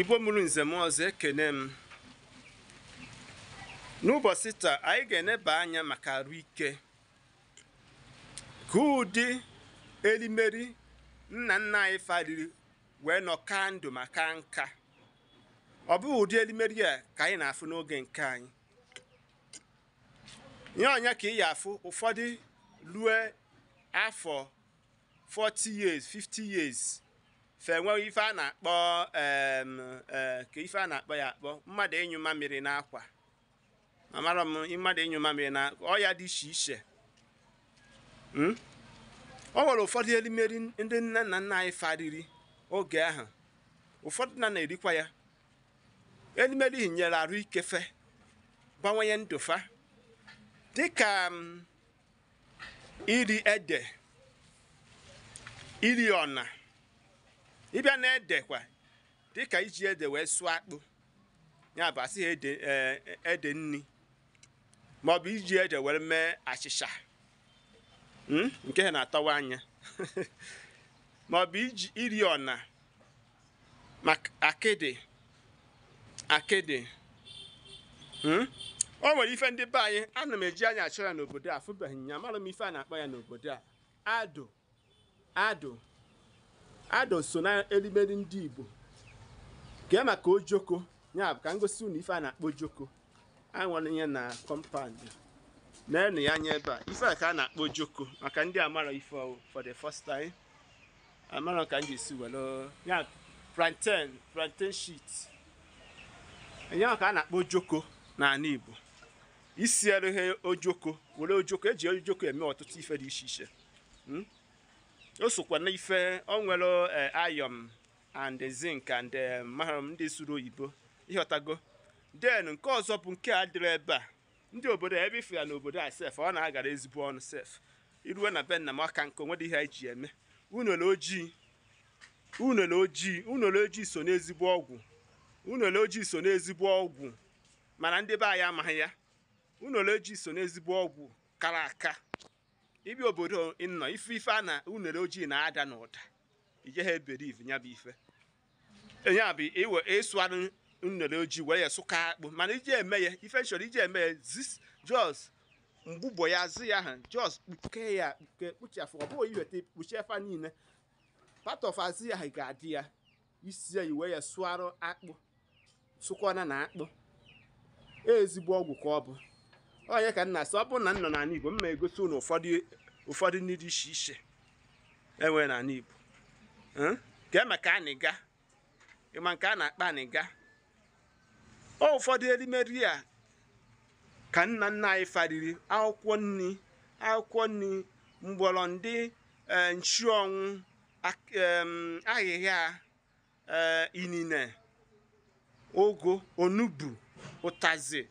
igbo mụrụ nze m ọzọ ekene m n'ụbọchị taa anyị ga-eneba anya maka arụ ike ka ụdị elimeri nna nna anyị fariri wee nọ ka ndụ maka nka ọ bụghị ụdị elimeri a ka anyị na-afụ n'oge nke anyị ya ọnya ka ị ya afụ ụfọdụ rue afọ 40 years 50 fe nwewe ife a na-akpọ e, ka ife a na-akpọ ya akpọ mmadụ ịnyụ mamịrị n'akwa amara m mmadụ ịnyụ mamịrị na ọya dị iche iche ọ hmm? nwere ụfọdụ elimeri ndị nne na nna anyị fariri oge ahụ ụfọdụ na na-erikwa ya elimeri nyere arụ ikefe gbanwenye ndụfa dịka iri ede iri ọna ịbịa na edekwa dịka iji ede wee sụọ akpụ ya bụ asị ede e, ede nni maọbụ iji ede were mee achịcha hmm, nke ha na atọwa anya maọbụ iji iri ọna akịdị akịdị hmm. o nwere ife ndị be anyị ana m eji anya achọ ya n'obodo a afụbeghị ya m ife a na-akpọ ya n'obodo a adụ adụ. Ado so na elimeri ndị Igbo gee maka ojoko ya bụ ka gosi unu ife a na-akpọ joko ojoko anwanye na kọmpand na-enu ya anya ebe a ife a ka a na-akpọ joko maka ndị amara ife ọwụ for the first time amara ka m ga-esi were ya plantain plantain shit enye ka a na-akpọ joko n'ala Igbo isi erughe ojoko were ojoko eji ojoko eme ọtụtụ ife dị iche iche hmm? o sokwa na ife o ayọm and zinc and eh, mahrum ndị suru oyibo ịghọtago den nke ọzọ bụ nke a dịrị ebe a ndị obodo ebe ife ya n'obodo a sef ọ na-agara ezigbo ọnụ sef iruwe na be nna m aka nke onwe dị ihe eji eme unele ojii unele ojii ojii so n'ezigbo ọgwụ unele ojii so n'ezigbo ọgwụ mana ndị be anyị amaghị ya unele ojii so n'ezigbo ọgwụ kara aka ibi obodo nnọ ife ife a na unere ojii na-ada na ụda ha eberiv ya bụ ife ya bụ iwe ịsụarụ unere ojii wee ya sụka akpụ mana iji eme ya ife nchọrọ iji eme ya zis jos mgbụbọ ya zi ya ha jos kpuke ya kpuke kpuchafụ ọ bụghị iweta kpuchi efa niile part ya ga-adị ya isi ya iwe ya akpụ sụkwana na akpụ ezigbo ọgwụ ka ọ bụ onye ka nna sị ọ bụrụ na nọ n'ala Igbo m na egosi unu ụfọdụ ndị dị iche iche enwere n'ala Igbo hmm? ka e anịga ịma nke a na-akpa anịga ọ ụfọdụ erimeri a ka nna nna anyị fariri akwụkwọ nri akwụkwọ nri mgbọrọ ndị eh, nchuọnwụ ahịhịa eh, inine ogo onugbu ụtazị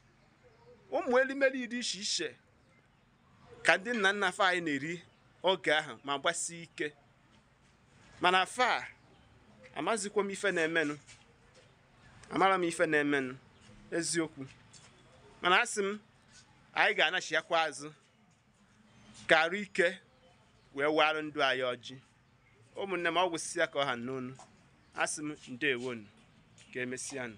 ụmụ elimeli dị iche iche ka ndị nna nna fa anyị na-eri oge ahụ ma gbasie ike mana fa amazikwa m ife na-emenụ amara m ife na-emenụ eziokwu mana asị m anyị ga-anachiakwa azụ ka ike wee warụ ndụ anyị ọjị ụmụnne m ọgwụ si ka ọ ha n'onu asị m ndewonu ka emesịanụ